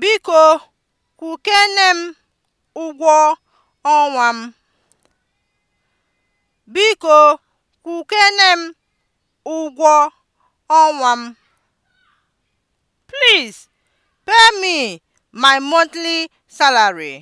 Biko kukene m ụgwọ ọnwa m. Biko m ụgwọ ọnwa m. Please pay me my monthly salary.